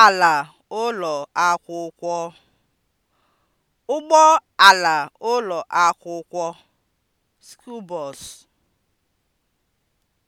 ala ụlọ akwụkwọ (ụgbọ ala ụlọ akwụkwọ (school bus)